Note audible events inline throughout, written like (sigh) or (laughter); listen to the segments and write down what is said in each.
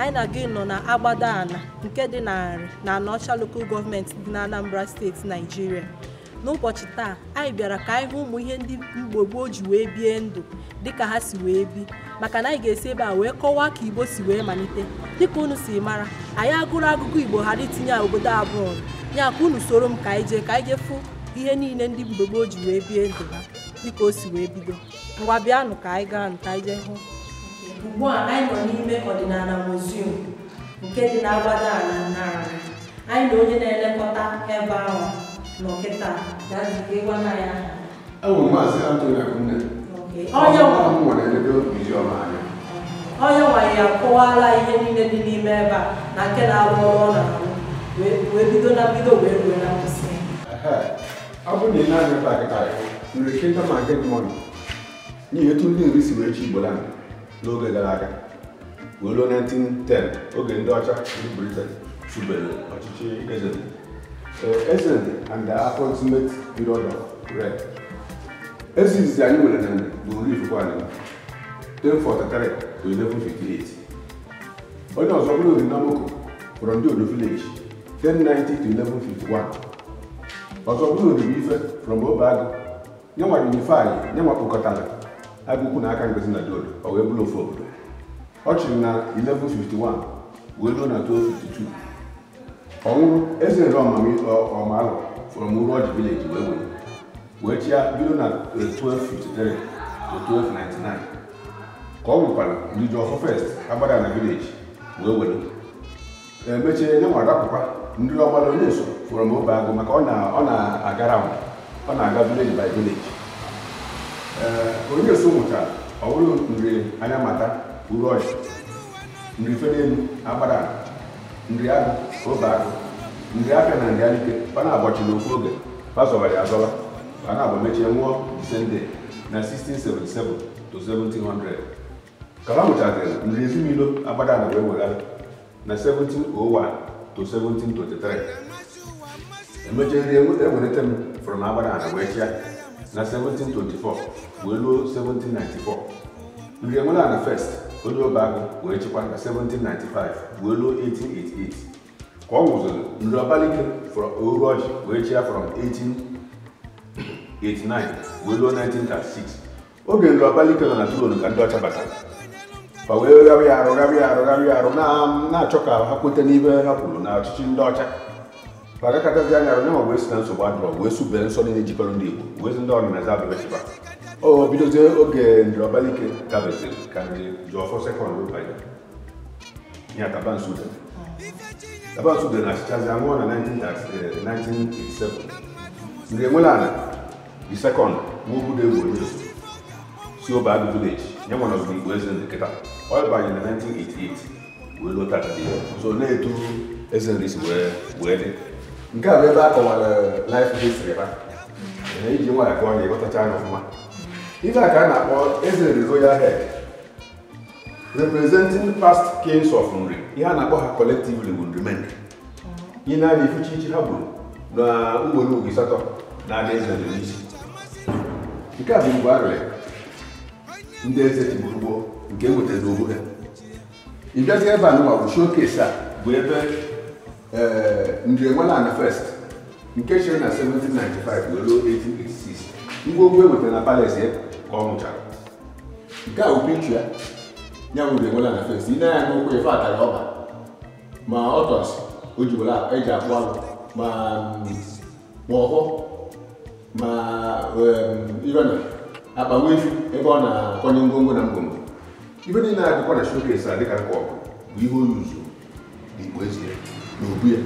anyị na gị nọ na agbadaala ala nke dị narị na Anọcha lokal gọọmenti dị na Anambra steeti Naijiria n'ụbọchị taa anyị bịara ka anyị hụ ụmụ ihe ndị Igbo gboo ji wee bie ndụ dịka ha si wee bi maka na anyị ga-esi ebe a wee kọwaa ka Igbo si wee malite dịka unu si mara anyị agụrụ agụgụ Igbo ghara itinye obodo abụọ ya ka unu soro m ka anyị jee ka anyị jee fụ ihe niile ndị Igbo gboo ji wee bie ndụ ha dịka o si wee bido ngwa bịanụ ka anyị gaa nụ ka anyị jee hụ ugbu a anyị nọ n'ime ọdịnala muzium nke dị na agbada ala n'ala anyị na onye na-elekọta ebe ahụ na nọ kịta gwana ya onye nwanyị ya kọwala ihe niile dị n'ime ebe a na nke na agba ọrụ ọ na-arụ wee bido na mbido wee rue na nkwụsị ọ bụrụ na ị na-anya nri kịta ma nke mmadụ n'ihi etu ndị nri si wee chi igbo lana n'oge gara aga wee ruo 1910 oge ndị ọcha ndị Britain chụbere ọchịchị eze eze and the approximate period red eze izizi anyị nwere na bụ nri ifukwa anyị 1043 to 1158 onye ọzọ bụrụ ori n'amoko fọrọ ndị odo village 1090 to 1151 ọzọ bụrụ ori ife from obeagụ nyenwa unifai nyenwa kpokọtara aga na aka Ngozi na Diodo ọ wee bụrụ ofu obodo ọ chịrị na 1151 wee ruo na 1252 ọ nwụrụ eze nre ọmalụ fọrọ m vileji wee wee wee chịa bido na 1253 1299 ka ọ nwụkwara ndị ọfọ fest agbada na vileji wee were emechie nye nwa rapụkwa ndị ọgbara onye so fọrọ m agụ maka ọ na-agara ọ na-aga vileji by vileji Eh, onye so nwụchara ọ bụrụ nri anya mata uru ọchị nri fenelu agbara nri agụ obe agụ nri afịa na nri alike ọ na-agbọchi n'okwu oge pasọbara ya zọla ọ na-agba mechie nwụọ sende na 1677 to 1700 kala nwụchaziri nri ezinụlọ agbada na oh wee e weghara na 1701 to 1723 emechie nri ewelite m fụrụ na agbada na wee chịa na 1724 wee ruo 1794 nri enwela na first onye ọba ahụ wee chịkwa na 1795 wee ruo 1888 ka ọ nwụziri nri ọbalike oru ọjị wee chịa from 1889 wee ruo 1936 oge nri ọbalike nọ na tron ka ndị ọcha batara ma wee gharị arụ gharị arụ gharị arụ na-achọ ka ha kweta n'ibe ha kwuru na ọchịchị ndị ọcha agakatazi anya arụ nyenwa wee si na nsogbu adọrọ wee subere nsọ niile jikọrọ ndị Igbo wee si ndị ọdịnaza abịabechiba o bidozie oge ndịrọbalike gabesịrị ka ndị jụọfọ sekọndị banye ya tabansu dere tabansu dere na achịchazi anwụọ na 1987 ndị enwela ana di sekọndụ n'ugwu dị egwu onye si obe adụ vileji nyenwa na ogige Igbo eze ndị kịta ọ banye na 1988 wee lụta so na-etu eze nri si wee dị nke a bụ ebe a kọwara life history ha na iji nwaanyị kpọọ ya ịghọtacha anya ọfụma ife a ka a na-akpọ eze rezoya head representing past kings of nri ihe a na-akpọ ha collectively bụ nri menri ihe na-abịa ifuchi ichi ha gburu na ugboro ugwu ịsatọ na-abịa eze n'isi nke a bụ mgbe a rere ndị eze tigburu nke enwetara ogbu ha ịbịazi ebe a nụwa bụ showcase a bụ ebe Eh, Njirimara na first nke chere na 1795 wee ruo 1886 ngwongwo e wetara na palace ya ka ọ nwụchara nke a wụpinchu ya ya bụ Njirimara na first ị na-anya n'okwu ife atara ọba ma ọtọs o jiwara eji akpụ alụ ma ọhụ mm, ma eh, irena akpa nwefu ebe ọ na-akọnye ngwongwo na ngwongwo ife niile na-adịkwa na showcase a dịka nke ọ bụ ihe o yuzu n'igbo ezie n'obu ya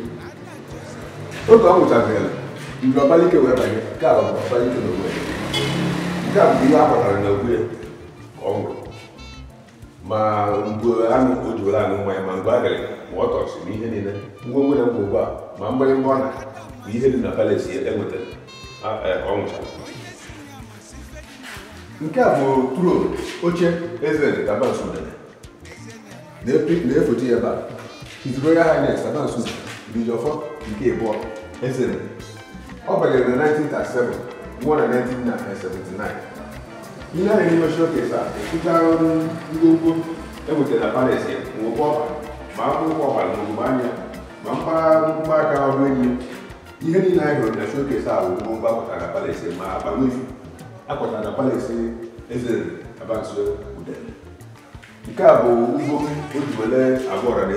oge ọ nwụchagara mgbe ọbalike wee banye nke a bụ ọbalike n'ogbu ya nke a bụ ihe a kpatara n'ogbu ya ka ọ nwụrụ ma mgbe anụ o ji anụ nwa ya ma mgbe agịrị ma ọ tọsị na ihe niile ngwa nwere mgbe ugbu a ma mgbịrịgba ọ na bụ ihe dị na palesi enwetara e, ọ nwụchara nke a bụ tron oche eze tabansụ na-efote ya ebe a His Royal Highness Adansu Bijọfọ nke ịbụọ Ezere. Ọ banyere na 1937 nwụọ na 1979. Ihe anyị n'ime showcase kesa ekwuchara ọrụ ngwongwo enwetara na Paris ọba ma akwụkwọ ọbara ma anya ma mpaghara aka ọrụ enyi ihe niile anyị hụrụ na a bụ ngwongwo akwọtara na ma na Nke a bụ ugbo o ji ọra na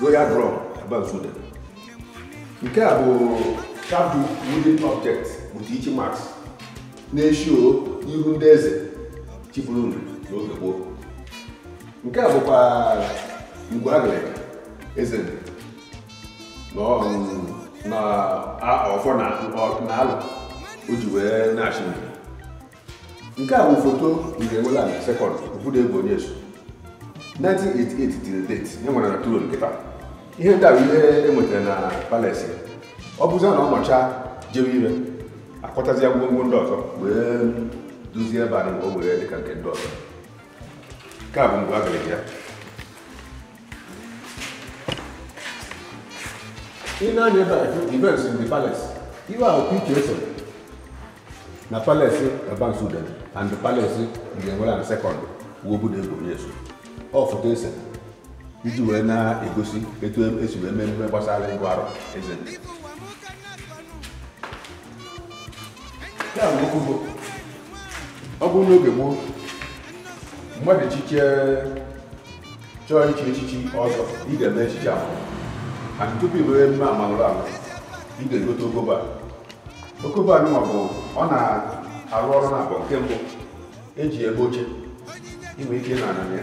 royal drum aba nzude nke a bụ shadow wooden object with ichi marks na-eshi o ihu ndị eze chịburu ndụ n'oge gboo nke a bụkwa ngwa agịrịga eze na ọfọ na alụ o ji wee na-achị nke a bụ foto ure enwela na sekọnd obodo egwu onye so 1988 till date enwere na turo nke taa ihe ndị a bụ ihe enwetara na palace ọ bụzi na ọnọcha jewe ire akpọtazia gwongwo ndị ọzọ wee duzie ebe anyị o were dịka nke ndị ọzọ nke a bụ mgbe a gara ya ị na-anya ebe a events in the palace iwe ahụ pk eso na palace abansuden and the palace ndị enwere na sekọnd wuobuda egwuregwu ọ foto ese iji wee na-egosi etu e, esi wee mee emume gbasara ịgụ arụ eze ya bụ okwu ọ bụrụ n'oge gboo mmadụ echiche chọọ iche echichi ọzọ ị ga-eme echichi ahụ mana tupu iwere emume amalụrụ alụ ị ga-egote okobo a okobo a bụ ọ na-arụ ọrụ na abụọ nke mbụ eji ebe oche inwe ike na ananya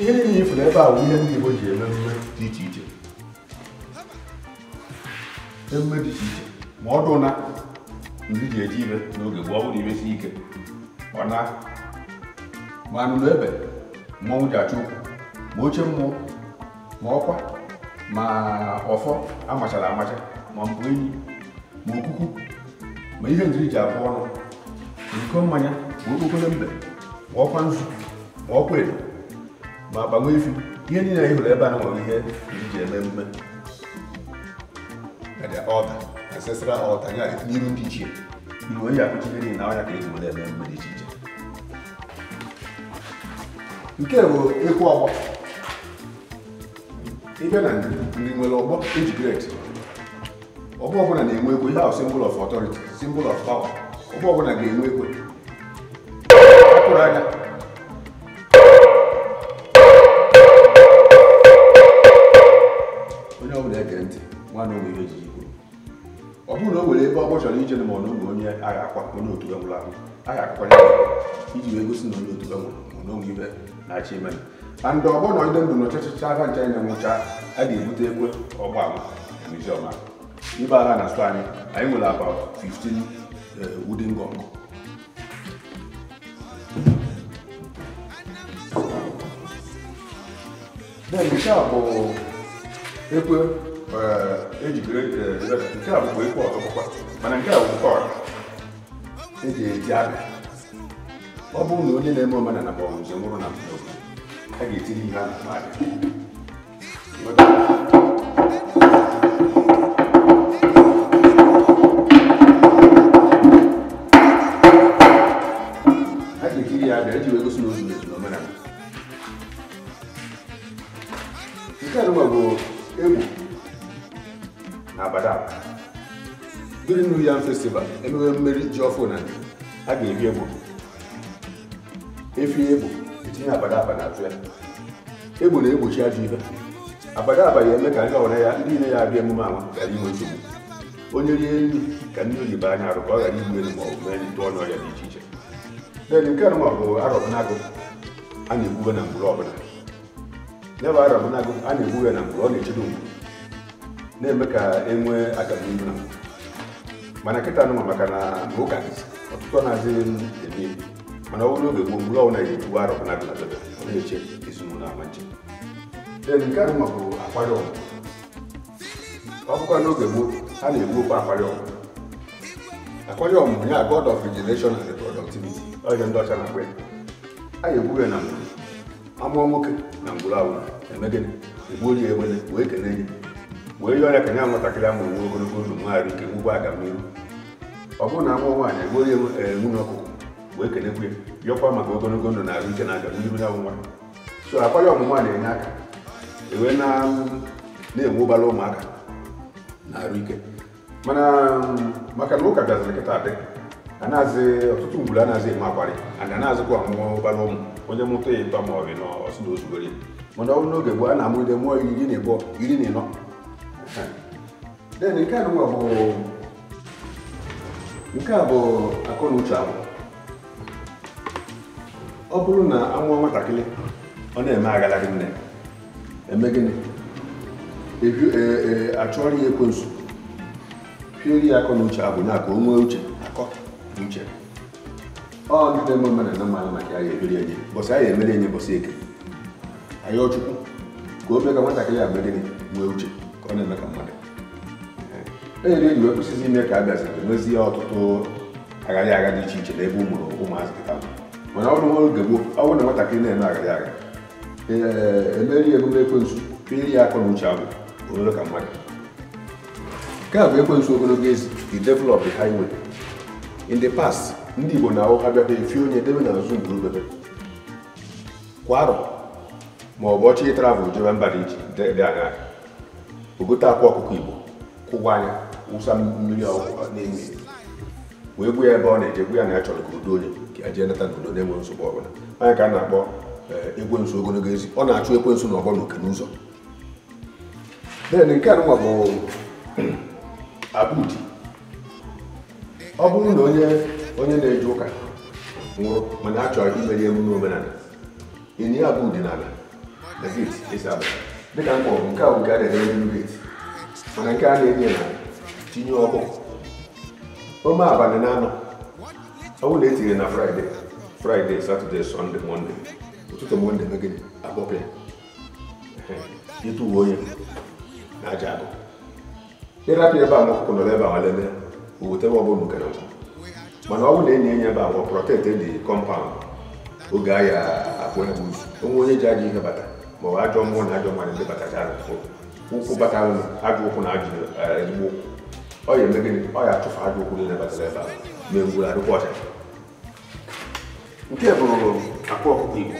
ihe niile ifuru ebe a bụ ihe ndị Igbo ji eme emume dị iche iche emume dị iche iche ma ọ dụ na ndị ji eji ire n'oge gboo ọ bụrụ imesi ike ọ na ma anụnụ ebe mmọnwụ ji achụ ụkwụ ma oche mmụọ ma ọkwa ma ọfọ amachara amacha ma mbụ enyi ma okuku ma ihe njiri ji abụọ ọnụ iko mmanya ma okpokoro mbe ma ọkwa nzu ma ọkwa edo ma gbanwee ifu ihe niile anyị hụrụ ebe a nwere ihe iji eme mme ọda ancestral ọda ya n'iru ndị ichie iwu eji akụchi ihe niile na ọnya ka eji were eme mme dị iche iche nke bụ ekwu ọgbọ ịbịa na ndị nwere ọgbọ eji gret ọgbọ ọbụla na-enwe ekwe ihe ahụ symbol of authority symbol of power ọgbọ ọbụla ga-enwe ekwe ma na ihe ejiji kwuru ọ bụrụ na o were ebe ọgbọ chọrọ ije na ma ọ na onye agha akwa onye otu iji wee gosi na onye otu nwụrụ ma ibe na-achị ime na ndị ọgbọ nọ ide ndụ na ọchịchịcha aka ncha na nwụcha a ga-ebute ekwe ọgbọ ama na iziọma ibe agha na stọ anyị anyị nwere about 15 eh, bụ ekwe Eh, ejikere eh, nke a bụ ikpe ọkụkwa mana nke a bụ eji eji abịa ọ bụrụ na onye na-eme omenala na na bụ njem nwụrụ na a ga-etinye ihe a na-akpa yam festival emewe mmeri ji ọfụ na a ga-eri egbo efi egbo etinye abada abada atụ ya egbo na-egbochi ajọ ihe abada ya eme ka ndị ọwara ya ndị ile ya abịa emume anwa ghara inwe nsogbu onye rie nri ka ndị oyibo anya arụ ka ọ ghara igbu elu mee ndị ọnụ dị iche iche nke anụma bụ arọbụnagụ a na na mgburu ọbụla arọbụnagụ a na na ọ na-echede mgbu na-eme ka e nwee agamnihu na mgburu mana kita tanonga makana bukan waktu otutwana zin ini mana wuluge gum lo na yitu waro kana kana tebe ne che isunu na manche den karu ma bu akwado okwa no gemuk bu ani apa apa akwado akwado yang punya god of regeneration and productivity oh yang ndo chana kwe aye bu na amu amọ nwoke na ngwuru awụ emegene egbu onye egbene wee kene mgbe ihe ọrịa ka nya nwatakịrị ahụ nwe ogologo ndụ nwaanyị ike nwekwa agamnihu ọ bụrụ na amụọ nwaanyị enweghị eh, nwunye ọkụkụ wee kenekwe ya bịọkwa maka ogologo ndụ na arụ ike na agamnihu ya nwa so akwa ya ọmụma na-enye aka ewee mm, na-enwe ụbara ụmụaka na arụ ike mana mm, maka na ụka bịaziri kịta dị anaghị ọtụtụ ngwuru anaghị eme akwarị ana na-azụkwa ọmụmụ ụbara ụmụ onye mụta ya ịtọ ma ọ bụ na ọsụ na ozugbo mana ọ bụ n'oge gbo a na-amụride mụọ iri na ịbụọ iri na ịnọ Eh. then nke a bụ nke a bụ akọ na uche agwụ ọ bụrụ na anwụọ nwatakịrị ọ na-eme agalaghị nne eme gịnị ee e, achụọrọ ya ekwensu pieri ya akọ na uche agwụ ya ka o nwee uche akọ na uche ọ ndị na-eme mmadụ na mmanụ maka ya ebiri enye bọsị anyị emere enye bọsị eke anyị ọchukwu ka o mee ka nwatakịrị a mee gịnị nwee uche ọ na-eme ka mmadụ enyere egwu ekwesịghị ime ka a bịaziri emezie ọtụtụ agharị agha dị iche iche n'ebe ụmụrụ ụmụazị kịta mana ọ bụrụ oge gboo ọ bụrụ na nwatakịrị na-eme agharị agha emeri emume ekwensu piri ya akọ na uche abụ obere ka mmadụ nke a bụ ekwensu ogologo ezi the develop the highway in the past ndị igbo na ahụ ha bịakwa efi onye debe na nzu mgburubebe kwa arọ ma ọ bụ ọchị travel jebe mba dị iche dị agha ogote akwa ọkụkọ igbo kwụwa anya wụsa mmiri n'ime wee gwu ya ebe ọ na-eje egu ya na ya chọrọ ka udo onye ka ya e jee nata n'udo na enwe nsogbu ọbụla anya ka a na-akpọ eh, nso ogologo ezi ọ na-achụ ekwensu na ọgbọ na okene n'ụzọ den nke anụnwa bụ (clears throat) abudi ọ bụrụ na onye onye na-eje ụka nwụrụ mana a chọrọ imeri emume omenala ịnye abudi n'ala na geti esi abata dịka mkpọ nke a bụga dere elu rate mana nke a na-enye na tinye ọkụ ome abalị na anọ ọ bụrụ na etinyere na fraịde fraịde satọde sọnde mọnde ụtụtụ mọnde megịnị agbọpụ ya ịtụ uwe onye na aja agụ ịrapụ ebe a n'ọkụkụ nọrọ ebe a walele owete ọ ọbụla nke na nkwụ mana ọ bụrụ na enyi enye ebe a wọ prọtekt dị e kọmpaụnd oge ahịa akpụ ya bụ onwe onye ji aja ihe bata ma ọ bụ ajọ mmụọ na ajọ mmadụ ndị batacha ụkwụ bata ajọ ụkwụ na ọ ya ọ ya ajọ ụkwụ niile batara ebe a nke bụrụ akwa ọkụkọ igbo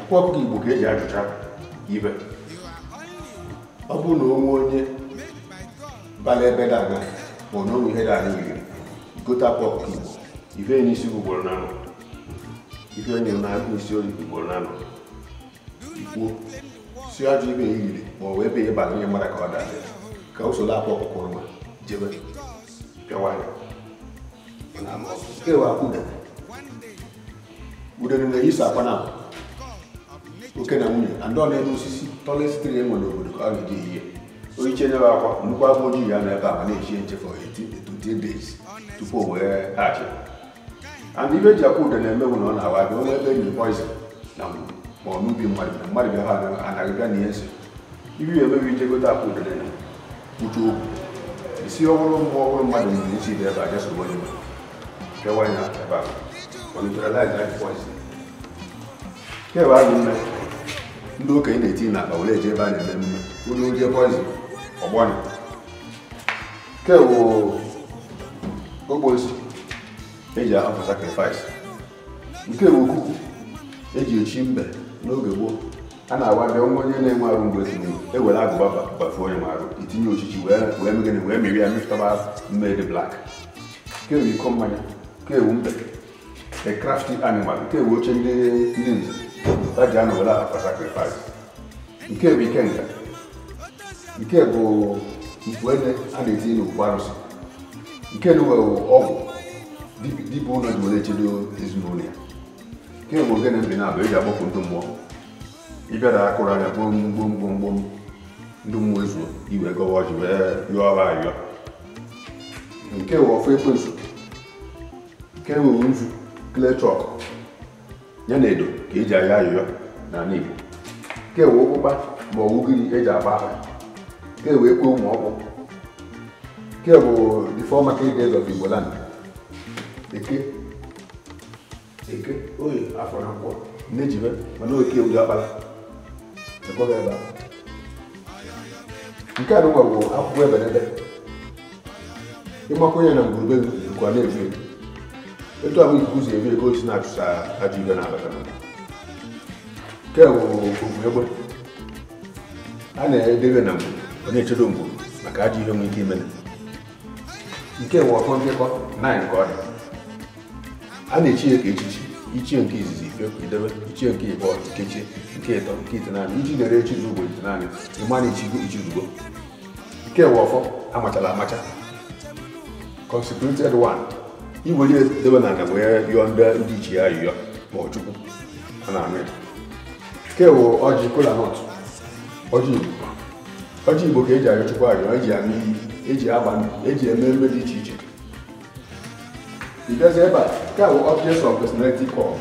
akwa ọkụkọ igbo ka eji ajụcha ibe ọ bụrụ na onwe onye bala ebe dị anya ma ọ ihe ife n'isi ugboro na ife onye na-agụ isi oyi ugboro na ikwuo si ajọ ibe ya yiri ma ọ wee be na onye mara ka ọ daa ka usoro akwa ọkụkọ nwa jebe pịawa ya ewe Udene udere na-eyisa akwa na oke na nwunye andị ọ na-eme osisi tọlet sitere e enwe n'obodo ka ọ ga-eji ihe oyiche nyere akwa nnukwu agwọ ojii ya na a ma na-echi nchefu 18 tupu and ibe ji akwa ude na-emewu na ọ na-awa abịa onye ebe enyi poizin na mgbu ma ọ n'ubi mmadụ na mmadụ bịa ha na-agịbịa na ihe ibi emebi akpa obere okwu isi ọhụrụ mmụọ ọhụrụ mmadụ nwere isi dị ebe a jesobe onye kewa ebe a kewa mme ndị okenye na-eti na akpa were eje ebe a na-eme mme onye oje kewo eji ahapụ nke eji echi mbe n'oge gboo a na-agwa bịa nwa onye na-enwe arụ mgbe ezinụlọ ewere agụba gbafuo onye arụ itinye ochichi wee megide wee meri ya mepụtaba mmeri blak kewu iko mmanya kewu mbe a crafty animal kewu oche ndị ndị nze ta ji anụ were akpa sacrifice nke bụ ike nka nke bụ mkpuede a na-etinye n'okwu arụsị nke na uwe ọgwụ dibụ ụlọ ji were echedo ezinụlọ ya kemgbe ogene mgbe na-abụ e ji agbapụ ndị mmụọ ịbịara akụrụ anya gbom gbom gbom gbom ndị mmụọ ezuo iwe gọwa ji wee yọọ ọra ayọ nke wụ ọfụ ekwensu nke wụ nzu klechọk ya na edo ka eji ayọ ayọyọ na ala Igbo nke wụ ụkpụkpa ma ọ ugiri eji agba aha nke wụ ekwe ụmụ ọkpụ nke bụ the former king of Igbo land eke eke oyi afọ na nkwọ na-ejibe mana oke ewu akpala ekweghị ebe a nke a dịkwa bụ akwụkwọ e ebedede ịgbakọ onye na ngwurube nkwa na-efu efu etu ahụ ikuku si ebi ego si na-achụsa ajọ ibe na-abata na nke bụ ogwu egbe a na-edebe na ngwuru ọ na-echedo ngwuru maka ajọ ihe nwere ike imele nke bụ ọkọ nkekọ 9 nke ọ dị a na-echi ya ka echichi ichie nke izizi ifeidebe ichie nke ịbụọ nkechi nke ịtọ nke itinanị iji nyere echi ugbo itinanị ịma na-echigo ichizugbo nke we ọfọ amachala amacha consecrated one iwere edebe na ala wee yọọ ndị iche ya yụọ ma ọ chukwu a na-anụ ya nke wụ ọjị kolanut ọjị igbo ọjị igbo ka eji ayọ chukwu e ayọ eji anụ iyi eji aba eji eme mme dị iche iche mbezi ebe a nke a bụ objects of personality cult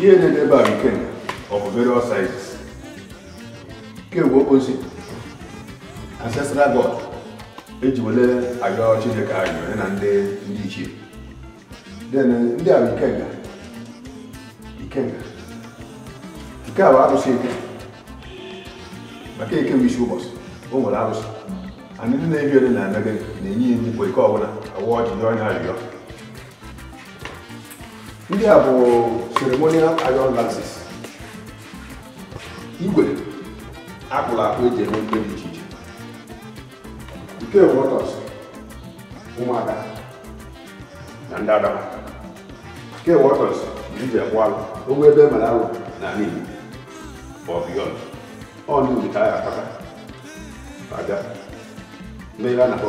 ihe na-ede ebe a nke of various sizes nke bụ okposi ancestral god eji wele ayọ chineke ayọ na ndị ndị ichie ndị a bụ ikenga ikenga nke a bụ arụsị eke maka eke bụ isi ụbọchị o nwere arụsị ndị na-ebi ole na anagị na-enye ya nnukwu ike ọbụla ọwa ọjụjụ anya arịọ ndị a bụ ceremonial iron lances igwe akpụrụ akpụ eji eme mkpe dị iche iche nke wọtọs ụmụada na ndị adama nke wọtọs bụ iji ekwu alụ ogbe ebe mere alụ na n'ihi ọ ọ ndị ka a ga-akpata aga mmeghe a na-akpọ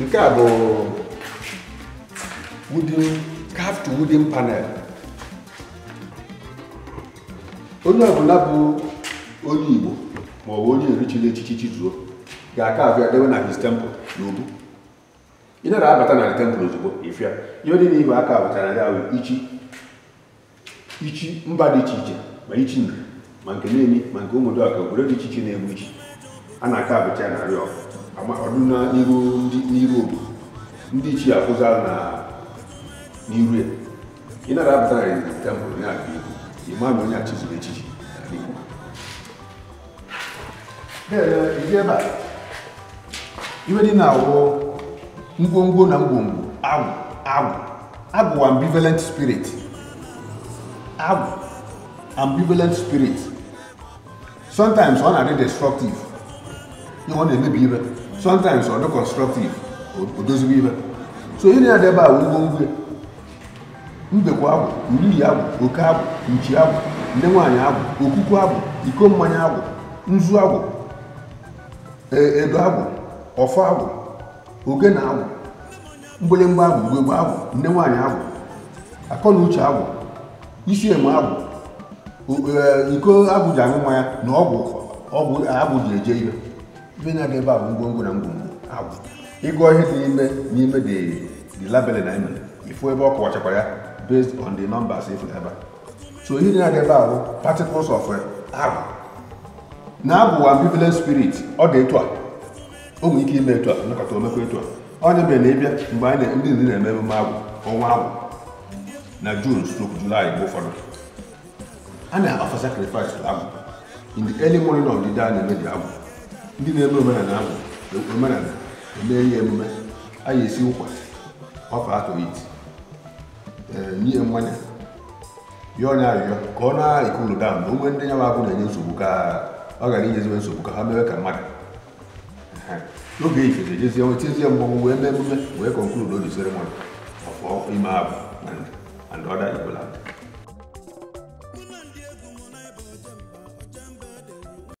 nke a bụ wooden carved wooden panel onye ọbụla bụ onye Igbo ma ọ bụ onye erichiri echichi Chizuru ga-aka abịa dewe na his temple na obu ị nara abata na temple ozugbo ịfịa ihe dị n'ihu aka abụtara ya bụ ichi ichi mba dị iche iche ma ichi nri ma nke na-emi ma nke ụmụdụ ọka obodo dị iche iche na-egbu ichi a na-aka abụcha narị ọgụ n'iru obodo ndị ichie na n'iru ya ị nara abụta na tebụl onye aka ibu ịma na onye achịziri echichi iwe dị na awụ ngwongwo na ngwongwo agwụ agwụ agwụ ambivalent spirit agwụ ambivalent spirit sometimes ọ na-adị destructive ihe ọ na-emebi ire sometimes ọ dị constructive odozigo ibe so ị na-adebe awụ ugbo ugwe mbekwa agwụ uriyi oke agwụ nchi agwụ ndị nwaanyị agwụ okuku agwụ iko mmanya agwụ nzu agwụ e, edo agwụ ọfọ oke na agwụ mgbịlịmgba agwụ ugbegbe agwụ ndị nwaanyị agwụ akọ na uche agwụ isi eme agwụ e, iko agwụ ji aṅụ mmanya na ọgwụ ọgwụ ji eje ihe ihe na-aga ebe a bụ ngwongwo na ngwongwo agwụ ịgụọ ihe dị n'ime n'ime the labele na ime ifu ebe ọ kọwachakwara ya based on the numbers ifu ebe so ihe na-aga ebe a bụ particles of agwụ eh, na agwụ ambivalent spirit ọ dị etu a o nwere ike ime etu a nakọta omekwa etu a onye mere na ịbịa mgbe anyị ndị ndị na-eme emume agwụ ọnwa agwụ na jun stroke julaị mgbe ụfọdụ a na-afa sacrifice agwụ in the early morning of the day a na-eme dị agwụ ndị na-eme omenala ahụ omenala emee ya emume a ga-esi ụkwa ọfa atọ iti nye mmanya ya onye arịrịọ ka ọ na-ekulu da na onwe ndị ya nwa abụ na-enye nsogbu ka ọ ghara inyeziwe nsogbu ka ha mewe ka mmadụ n'oge ifeze jezie nwetiezie mmanwụ wee mee emume wee konkludo the ceremony of ime abụ and other igbo land